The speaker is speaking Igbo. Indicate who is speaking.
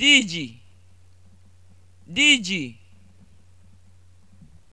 Speaker 1: diji diji